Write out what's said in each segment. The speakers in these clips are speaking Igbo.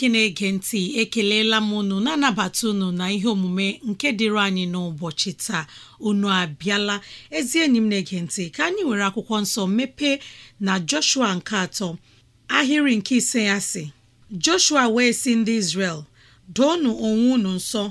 chineke na-ege ntị ekelela m unu na-anabata unu na ihe omume nke dịrị anyị n'ụbọchị taa unu abịala ezi enyi m na-ege ntị ka anyị were akwụkwọ nsọ mepee na Joshua nke atọ ahịrị nke ise ya sị Joshua wee sị ndị Izrel doonụ onwe unu nsọ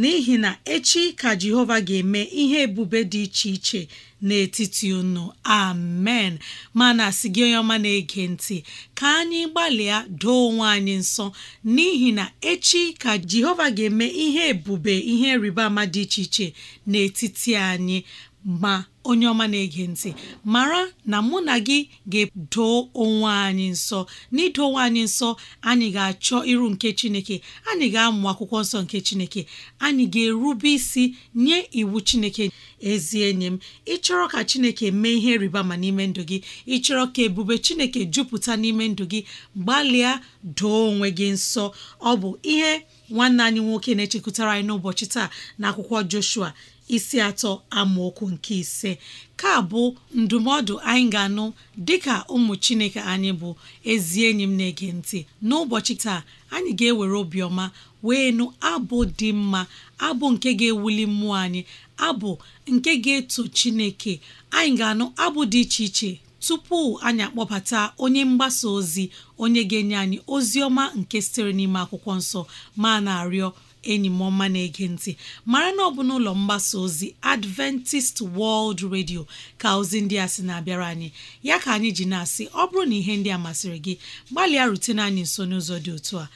n'ihi na echi ka jehova ga-eme ihe ebube dị iche iche n'etiti unu amen mana sị gị onye ọma na-ege ntị ka anyị gbalịa doo onwe anyị nsọ n'ihi na echi ka jehova ga-eme ihe ebube ihe rịba ama dị iche iche n'etiti anyị ma onye ọma na-ege ntị mara na mụ na gị ga edoo onwe anyị nsọ na onwe anyị nsọ anyị ga-achọ iru nke chineke anyị ga-amụ akwụkwọ nsọ nke chineke anyị ga-erube isi nye iwu chineke ezi enyi m ịchọrọ ka chineke mee ihe rịba ma n'ime ndụ gị ịchọrọ ka ebube chineke jupụta n'ime ndụ gị gbalịa doo onwe gị nsọ ọ bụ ihe nwanne anyị nwoke na-echekwutara anyị n'ụbọchị taa na akwụkwọ Joshua isi atọ amaokwu nke ise ka bụ ndụmọdụ anyị ga-anụ dịka ụmụ Chineke anyị bụ ezi enyi m na-ege ntị n'ụbọchị taa anyị ga-ewere obiọma wee nụ abụ dị mma abụ nke ga-ewuli mmụọ anyị abụ nke ga-eto Chineke anyị ga-anụ abụ dị iche iche tupu anyị akpọbata onye mgbasa ozi onye ga-enye anyị ozi ọma nke sitere n'ime akwụkwọ nsọ ma na-arịọ enyi m ọma na-ege ntị mara na ọ bụ n'ụlọ mgbasa ozi Adventist World Radio ka ozi ndị a sị na-abịara anyị ya ka anyị ji na-asị ọ bụrụ na ihe ndị a masịrị gị gbalịa rutene anyị nso n'ụzọ dị otu a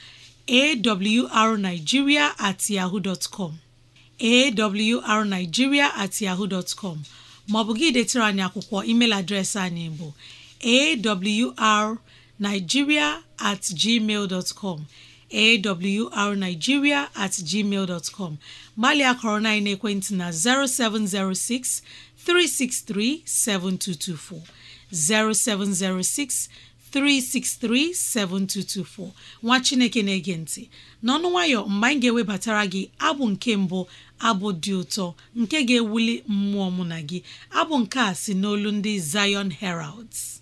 awrnigeria at yahoo dot com awrnigeria at yahoo dot com maọbụ gị detere anyị akwụkwọ email adreesị anyị bụ awrnigeria at gmail dot com awrnigeria at gmail dot com gbalịa kọrọ na ekwentị na 0706 363 7224 0706 363-7224 nwa chineke na-ege ntị n'ọnụ nwayọ mgbe anyị ga-ewebatara gị abụ nke mbụ abụ dị ụtọ nke ga-ewuli mmụọ mụ na gị abụ nke a si n'olu ndị Zion Heralds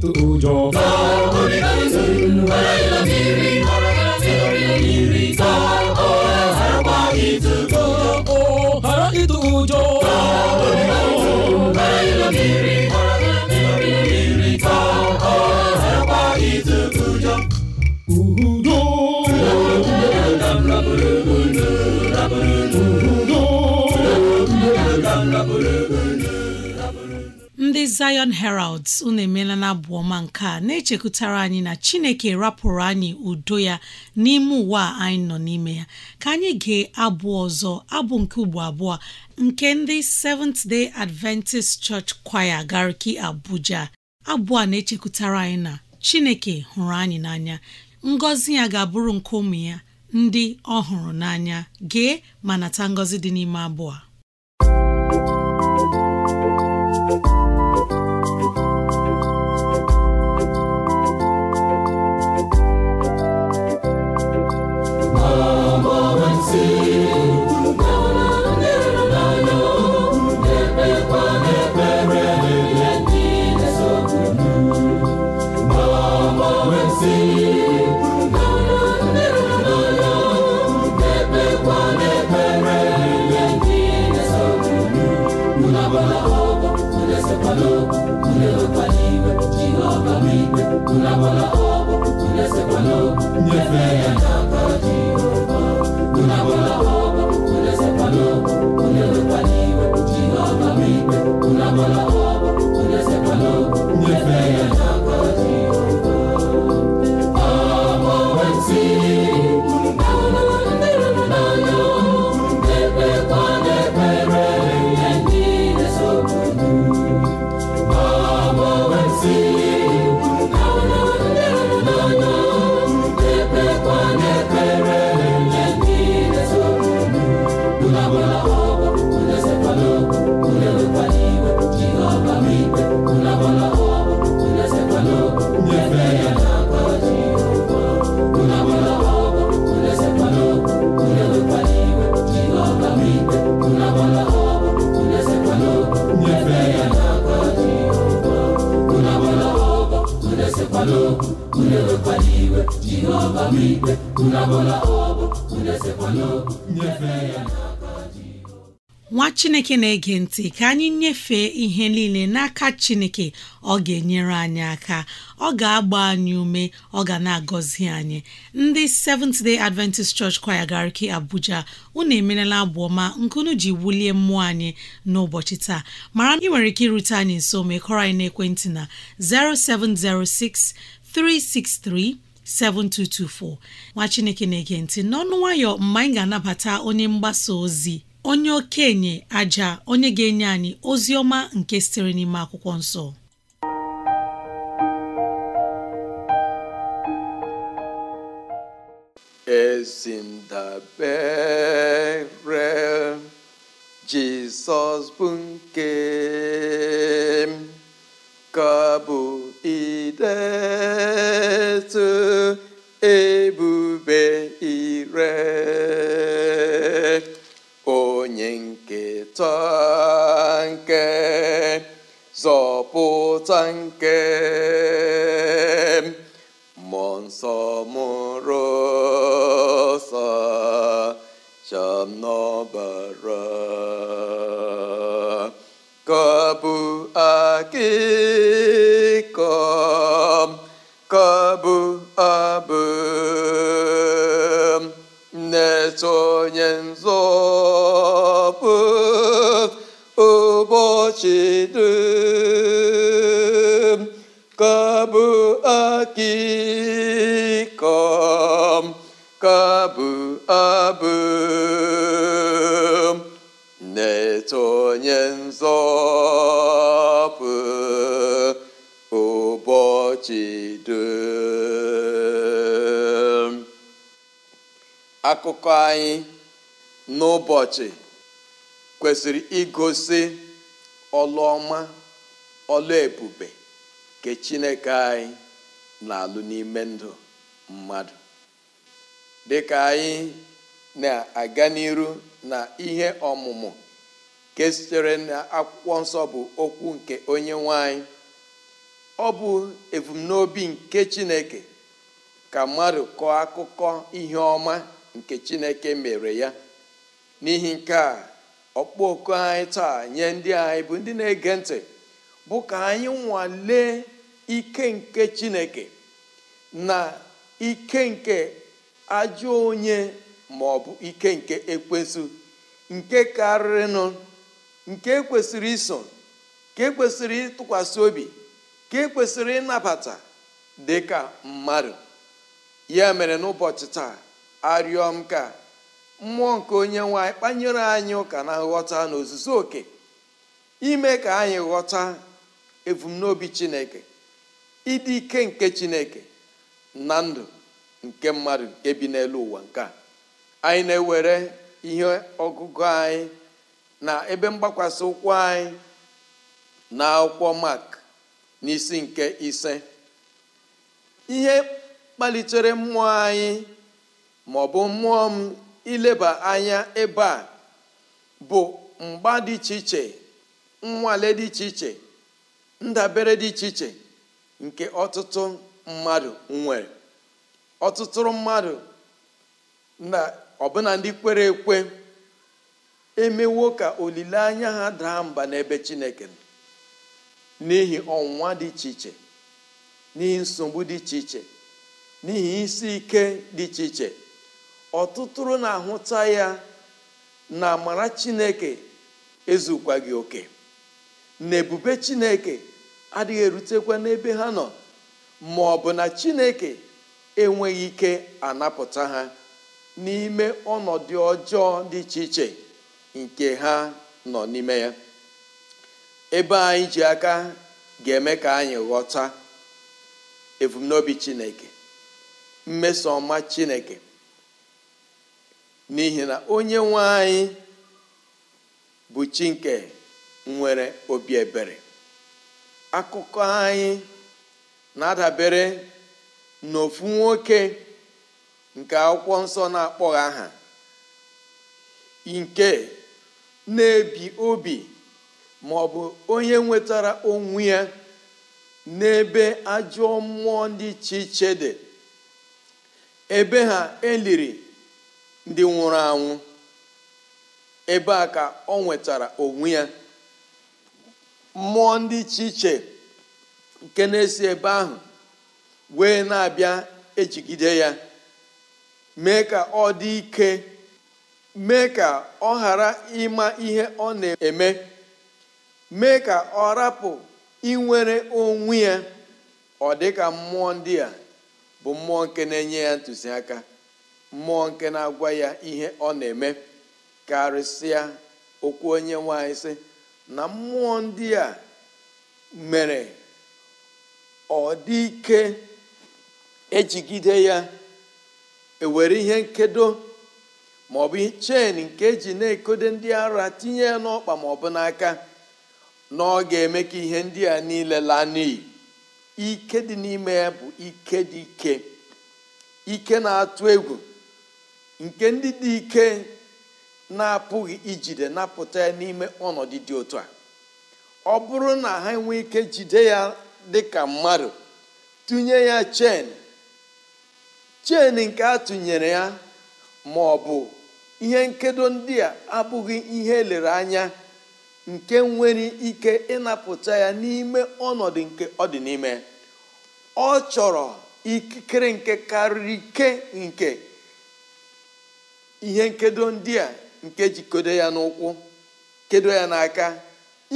itu ujo. Zion heralds unu emeela na abụ ọma nke a na-echekwutara anyị na Chineke rapụrụ anyị udo ya n'ime ụwa anyị nọ n'ime ya ka anyị gee abụ ọzọ abụ nke ugbo abụọ nke ndị Seventh Day Adventist Church Choir Garki Abuja abụ na-echekwutara anyị na Chineke hụrụ anyị n'anya ngọzi ya ga-abụrụ nke ụmụ ya ndị ọ hụrụ n'anya gee ma nata ngọzi dị n'ime abụọ efe nwa chineke na-ege ntị ka anyị nyefee ihe niile n'aka chineke ọ ga-enyere anyị aka ọ ga-agba anyị ume ọ ga na-agọzi anyị ndị Seventh Day Adventist Church Choir Garki Abuja unu emerela abụọma ọma nkunu ji wulie mmụọ anyị n'ụbọchị taa mara ị nwere ike irute anyị nso mekọrọ anyị n'ekwentị na 0706 363 7224 nwa Chineke na-ege ntị n'ọnụ nwayọ mgbe anyị ga-anabata onye mgbasa ozi onye okenye aja onye ga-enye anyị ozi ọma nke sitere n'ime akwụkwọ nsọ nzọpụ ụbọchị dum akụkọ anyị n'ụbọchị kwesịrị igosi ọlụ ọma ọlụ ebube nke Chineke anyị na-alụ n'ime ndụ mmadụ dịka anyị na-aga n'iru na ihe ọmụmụ nke sitere na akwụkwọ nsọ bụ okwu nke onye nwanyị ọ bụ ebumnobi nke chineke ka mmadụ kọọ akụkọ ihe ọma nke chineke mere ya n'ihi nke a ọkpọ oku anyị taa nye ndị anyị bụ ndị na-ege ntị bụ ka anyị nwalee ike nke chineke na ike nke ajọ onye ma ọ bụ ike nke ekwensu nke karịrịnụ nke kwesịrị iso ka ekwesịrị ịtụkwasị obi ka ekwesịrị ịnabata dị ka mmadụ ya mere n'ụbọchị taa arịọ m ka mmụọ nke onye nwanyị kpanyere anyị ụka na nghọta na ozuzo oke ime ka anyị ghọta ebumnobi chineke ịdị ike nke chineke na ndụ nke mmadụ nke bi n'elu ụwa nke anyị na-ewere ihe ọgụgụ anyị na ebe mgbakwasị ụkwụ anyị na akwụkwọ mak n'isi nke ise ihe kpalitere mmụọ anyị ma ọ bụ mmụọ m ileba anya ebe a bụ mgba dị iche iche nnwale dị iche iche ndabere dị iche iche nke ọtụtụ mmadụ nwere ọtụtụ mmadụ na ọbụna ndị kwere ekwe emewo ka olileanya ha daa mba n'ebe chineke n'ihi ọnwụnwa dị iche iche n'ihi nsogbu dị iche iche n'ihi isi ike dị iche iche ọtụtụrụ na-ahụta ya na amara chineke ezukwaghị oke na ebube chineke adịghị erutekwa n'ebe ha nọ ma ọ bụ na chineke enweghị ike anapụta ha n'ime ọnọdụ ọjọọ dị iche iche nke ha nọ n'ime ya ebe anyị ji aka ga-eme ka anyị ghọta ebumnobi chineke mmeso ọma chineke n'ihi na onye nwe anyị bụ chi nwere obi ebere akụkọ anyị na-adabere n'ofu nwoke nke akwụkwọ nsọ na-akpọghị aha nke na-ebi obi ma ọ bụ onye nwetara onwe ya n'ebe ajọ mmụọ ndị iche iche dị ebe ha eliri ndị nwụrụ anwụ ebe a ka ọ nwetara onwe ya mmụọ ndị iche iche nke na-esi ebe ahụ wee na-abịa ejigide ya mee ka ọ dị ike mee ka ọ ghara ịma ihe ọ na-eme mee ka ọ rapụ inwere onwe ya ọ dị ka mmụọ ndị a bụ mmụọ nke na-enye ya ntụziaka mmụọ nke na-agwa ya ihe ọ na-eme karịsịa okwu onye nwanyị sị na mmụọ ndị a mere ọ dị ike ejigide ya ewere ihe nkedo maọbụ chen nke eji na-ekode ndị ara tinye ya n'ọkpa maọbụ n'aka na ọ ga-eme ka ihe ndị a niile laa n'iyi ike dị n'ime ya bụ ike dị ike ike na-atụ egwu nke ndị dị ike na-apụghị ijide napụta ya n'ime ọnọdụ dị otu a ọ bụrụ na ha enwee ike jide ya dị ka mmadụ tụnye ya chen chen nke a tụnyere ya ma ọ bụ ihe nkedo ndị a abụghị ihe elere anya nke nwere ike ịnapụta ya n'ime ọnọdụ nke ọ dị n'ime ọ chọrọ ikikere nke karịrị ike nke ihe nkedo ndị a nke jikodo ya n'ụkwụ kedo ya n'aka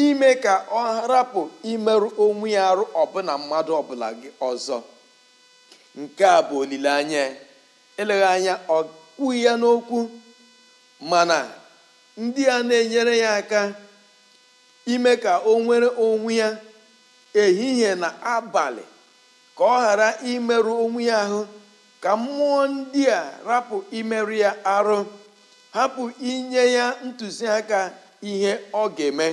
ime ka ọ rapụ imerụ onwe ya arụ ọbụna mmadụ ọbụla gị ọzọ nke a bụ olileanya eleghị anya ọ kwughị ya n'okwu mana ndị a na-enyere ya aka ime ka o nwere onwe ya ehihie na abalị ka ọ ghara imerụ onwe ya ahụ ka mmụọ ndị a rapụ imerụ ya arụ hapụ inye ya ntụziaka ihe ọ ga-eme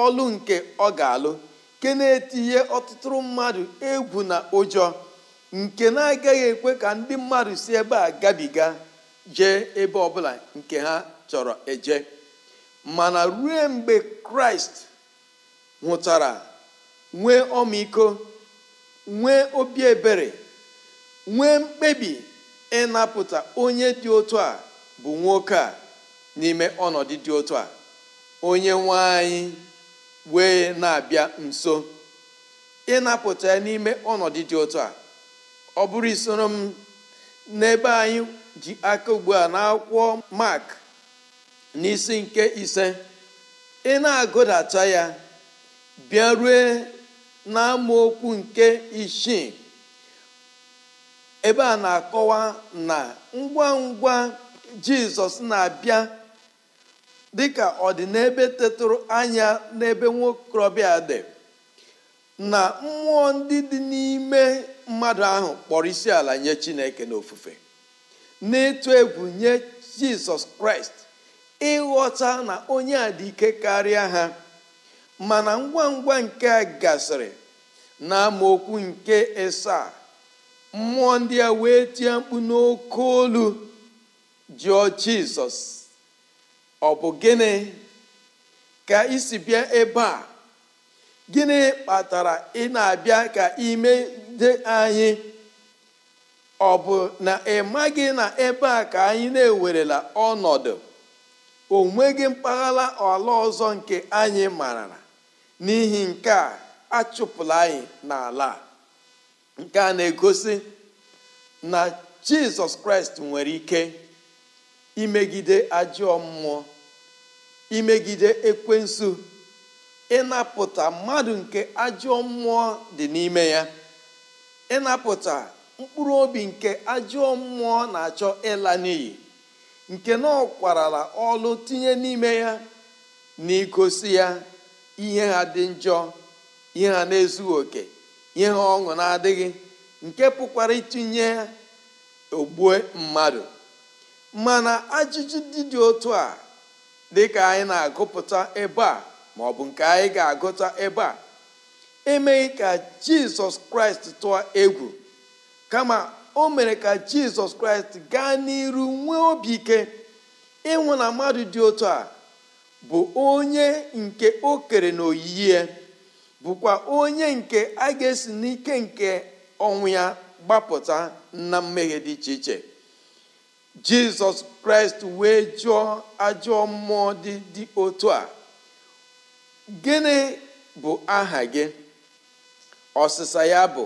ọlụ nke ọ ga-alụ nke na-etinye ọtụtụ mmadụ egwu na ụjọ nke na-agaghị ekwe ka ndị mmadụ si ebe a gabiga jee ebe ọbụla nke ha chọrọ eje mana ruo mgbe kraịst hụtara nwee ọmịiko nwee obi ebere nwee mkpebi ịnapụta onye dị otu a bụ nwoke a n'ime ọnọdụ dị otu a onye nwe anyị wee na-abịa nso ịnapụta n'ime ọnọdụ dị otu a ọ bụrụ isoro m n'ebe anyị ji aka ugbu a n'akwụkwọ Mark n'isi nke ise ị na-agụdata ya bịa rue n'amaokwu nke isii ebe a na-akọwa na ngwa ngwa jizọs na-abịa dịka ọ dị n'ebe tetụrụ anya n'ebe nwokorobịa dị na mmụọ ndị dị n'ime mmadụ ahụ kpọrọ isi ala nye chineke n'ofufe n'ịtụ egwu nye jizọs kraịst ịghọta na onye a dị ike karịa ha mana ngwa ngwa nke a gasịrị na amaokwu nke esaa mmụọ ndị a wee tie mkpu n'oke olu jụọ jizọs ọ bụ gịnị ka isi bịa ebe a gịnị kpatara ị na-abịa ka ime dị anyị ọ bụ na ị maghị na ebe a ka anyị na-ewerela ọnọdụ o nweghị mpaghara ala ọzọ nke anyị marara n'ihi nke a achụpụla anyị n'ala nke a na-egosi na jizọs kraịst nwere ike imegide ajọ mmụọ imegide ekwensu ịnapụta mmadụ nke ajọ mmụọ dị n'ime ya ịnapụta mkpụrụ obi nke ajọ mmụọ na-achọ ịla n'iyi nke na ọ kwarala ọlụ tinye n'ime ya na igosi ya ihe ha dị njọ ihe ha na-ezughị oke ihe ha ọṅụ na-adịghị nke pụkwara itinye ya ogbue mmadụ mana ajụjụ dị dị otu a dịka anyị na-agụpụta ebe a maọbụ nke anyị ga-agụta ebe a emeghị ka jizọs kraịst tụọ egwu kama o mere ka jizọs kraịst gaa n'iru nwee obi ike ịnwụ na mmadụ dị otu a bụ onye nke o kere na oyiyi bụkwa onye nke a ga-esi n'ike nke ọnwụ ya gbapụta na mmehie dị iche iche jizọs kraịst wee jụọ ajọ mmụọ dị dị otu a gịnị bụ aha gị ọsịsa ya bụ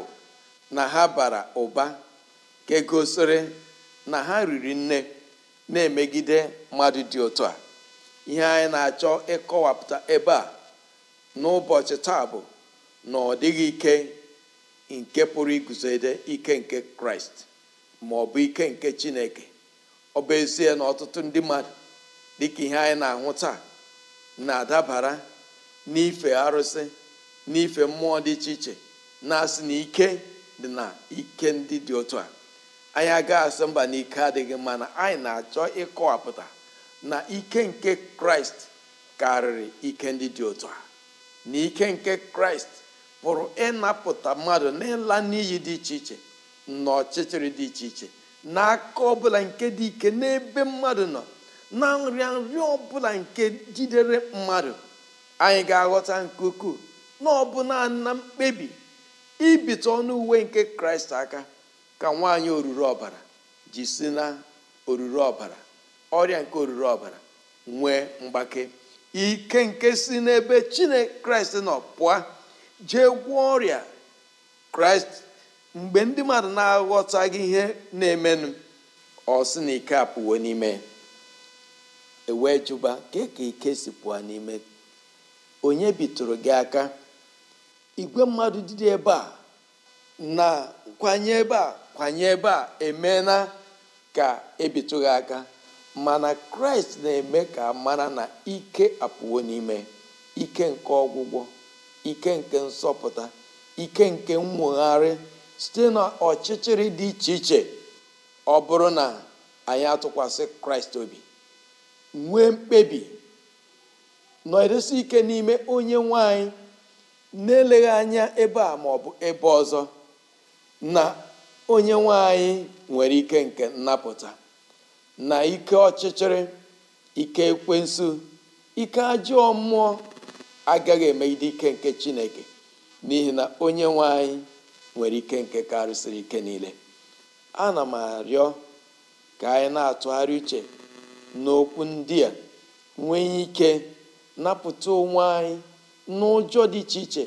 na ha bara ụba nke gosiri na ha riri nne na-emegide mmadụ dị otu a ihe anyị na-achọ ịkọwapụta ebe a n'ụbọchị taa bụ na ọ dịghị ike nke pụrụ iguzogide ike nke kraịst ma ọ bụ ike nke chineke ọ bụ ezie na ọtụtụ ndị mmadụ dịka ihe anyị na-ahụ taa na-adabara n'ife arụsị n'ife mmụọ dị iche iche na-asị na ike dị na ike ndị dị otu a anyị agaghị asị mba na ike adịghị mana anyị na-achọ ịkọwapụta na ike nke kraịst karịrị ike ndị dị otu a na ike nke kraịst pụrụ ịnapụta mmadụ n'ịla n'iyi dị iche iche na ọchịchịrị dị iche iche n'aka ọbụla nke dị ike n'ebe mmadụ nọ na nrịa nrịa ọbụla nke jidere mmadụ anyị ga-aghọta nke ukwuu na ọ bụ na mkpebi ibite ọnụ uwe nke kraịst aka ka nwaanyị oruru ọbara ji si na oruru ọbara ọrịa nke oruru ọbara nwee mgbake ike nke si n'ebe chineke kraịst nọ pụa jee gwọọ ọrịa kraịst mgbe ndị mmadụ na-aghọtaghị ihe na-emenụ ọ sị na ike apụwo n'ime ewee jụba ka ike si pụọ n'ime onye bitụrụ gị aka igwe mmadụ dị ebe a na kwanye ebe a kwanye ebe a emeela ka ebitụghị aka mana kraịst na-eme ka mara na ike apụwo n'ime ike nke ọgwụgwọ ike nke nsọpụta ike nke mmụgharị site n'ọchịchịrị dị iche iche ọ bụrụ na anyị atụkwasị kraịst obi nwee mkpebi nọdesi ike n'ime onye nwanyị na-eleghị anya ebe a ma bụ ebe ọzọ na onye nwe nwere ike nke nnapụta na ike ọchịchịrị ike ekwensu ike ajọọ mmụọ agaghị emegide ike nke chineke n'ihi na onye nwe anyị nwere ike nke karịsịrị ike niile a na m arịọ ka anyị na-atụgharị uche n'okwu ndị a nwee ike napụta onwe anyị n'ụjọ dị iche iche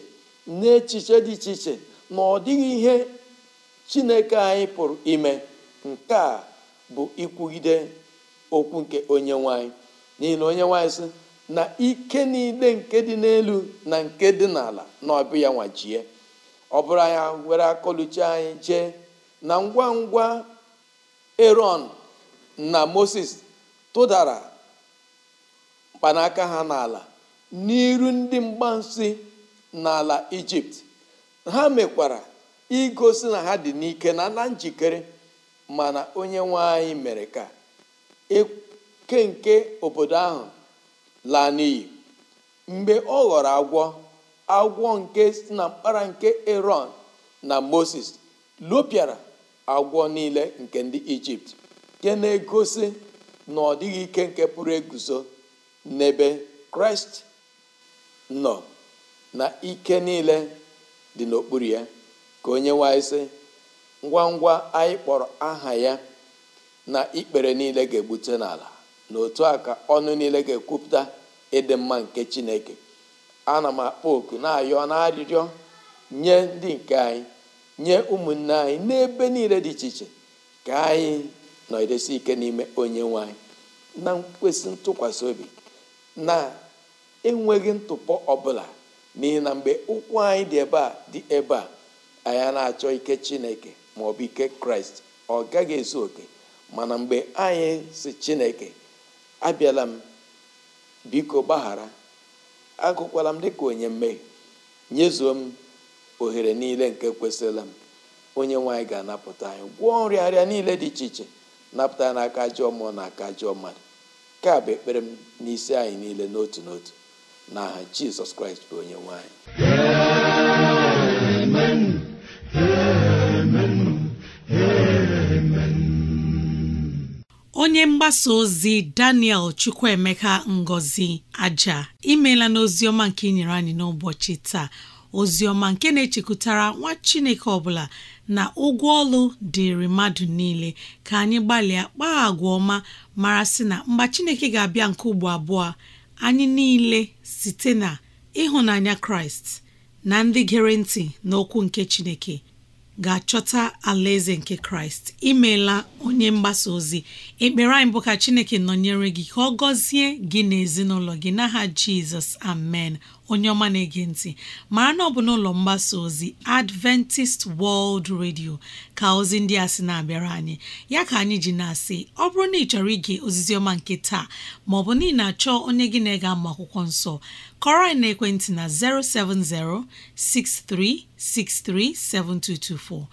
n'echiche dị iche iche na ọ dịghị ihe chineke anyị pụrụ ime nke a bụ ikwugide okwu nke onyenwe anyị n'ihi na onyenwe anyị sị na ike niile nke dị n'elu na nke dị n'ala na ọbụ ya nwajie ọ bụrụ anyị were akọluchi anyị jee na ngwa ngwa eron na moses tụdara mkpanaka ha n'ala n'iru ndị mgbansi n'ala ijipt ha mekwara igosi na ha dị n'ike na na njikere mana onye nwe anyị mere ka ike nke obodo ahụ laa n'iyi mgbe ọ ghọrọ agwọ agwọ nke si na mkpara nke eron na moses lopịara agwọ niile nke ndị ijipt nke na-egosi na ọ dịghị ike nke pụrụ eguzo n'ebe kraịst nọ na ike niile dị n'okpuru ya ka onye nwanyị sị ngwa ngwa anyị kpọrọ aha ya na ikpere niile ga-egbute n'ala na otu a ka ọnụ niile ga-ekwupụta ịdị mma nke chineke ana m akpọ oku na-ayọ na-arịrịọ nye ndị nke anyị nye ụmụnne anyị n'ebe niile dị iche iche ka anyị nọdesi ike n'ime onye nwanyị na nkwesị ntụkwasị obi na enweghị ntụpọ ọbụla n'ihi na mgbe ụkwụ anyị dị ebe a dị ebe a anyị na-achọ ike chineke maọbụ ike kraịst ọ gaghị ezu oke mana mgbe anyị si chineke abịala m biko gbaghara agụkwala m dịka onye mmehie nyezuo m ohere niile nke kwesịrịla m onye nwaanyị ga-anapụta anyị gwọọ nrịarịa niile dị iche iche napụta n'aka ajọ mmụọ na aka ajọ mmadụ ka bụ ekpere m n'isi anyị niile n'otu n'otu n'aha jizọs kraịst bụ onye nwanyị onye mgbasa ozi daniel chukwuemeka ngozi aja imela n'oziọma nke nyere anyị n'ụbọchị taa oziọma nke na-echekwutara nwa chineke ọ bụla na ụgwọ ọlụ dịịrị mmadụ niile ka anyị gbalịa kpaa agwa ọma mara sị na mgbe chineke ga-abịa nke ugbo abụọ anyị niile site na ịhụnanya kraịst na ndị gere ntị n'okwu nke chineke ga-achọta alaeze nke kraịst imeela onye mgbasa ozi ekpere anyị bụ ka chineke nọnyere gị ka ọ gọzie gị na ezinụlọ gị n'aha jizọs amen onye ọma na-ege ntị mara na ọ bụ n'ụlọ mgbasa ozi Adventist World Radio ka ozi ndị a sị na-abịara anyị ya ka anyị ji na-asị ọ bụrụ na ị chọrọ ige ozizi ọma nke taa ma maọbụ na ị na-achọ onye gị na ege ama akwụkwọ nsọ kọrọ anyị na ekwentị na 070 6363 7224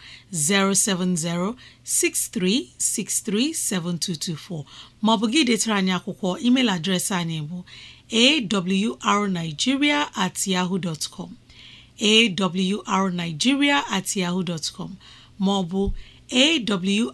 070 6363 7224 maọbụ gị detara anyị akwụkwọ email adreesị anyị bụ awrnigeria at yahoo dot com at yahoo dot maọbụ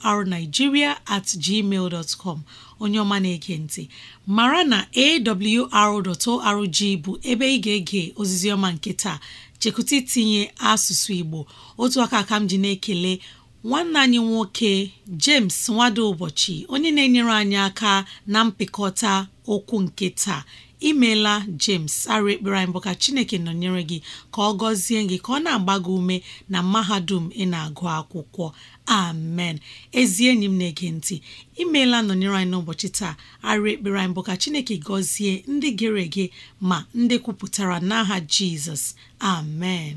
awrnigeria at gmail com onye ọma na-ege ntị mara na awr.org bụ ebe ị ga-ege oziziọma ọma nke taa chekụta itinye asụsụ Igbo otu aka aka m ji na-ekele nwanne anyị nwoke James nwado ụbọchị onye na-enyere anyị aka na mpịkọta okwu nke taa imela James ara ekpere anyị bụ ka Chineke nọnyere gị ka ọ gọzie gị ka ọ na-agba gị ume na mahadum ị na-agụ akwụkwọ amen ezi enyi m na-ege ntị imeela nọnyere anyị n'ụbọchị taa arụ ekpere anyị bụ ka Chineke gọzie ndị gere ege ma ndị kwupụtara n'aha Jizọs amen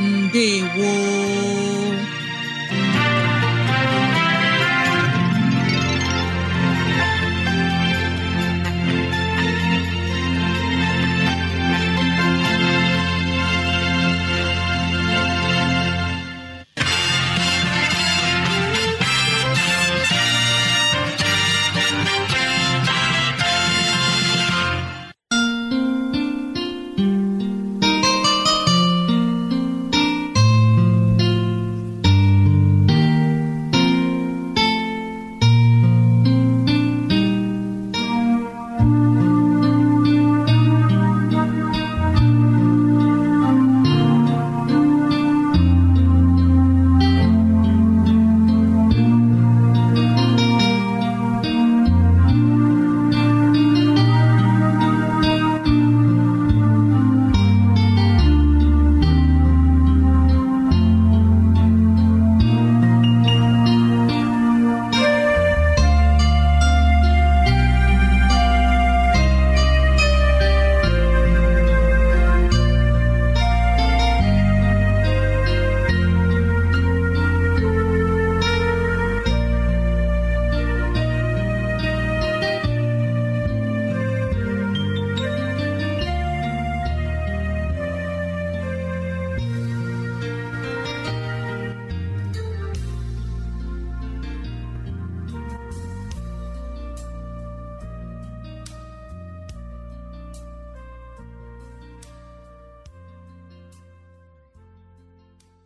ndewo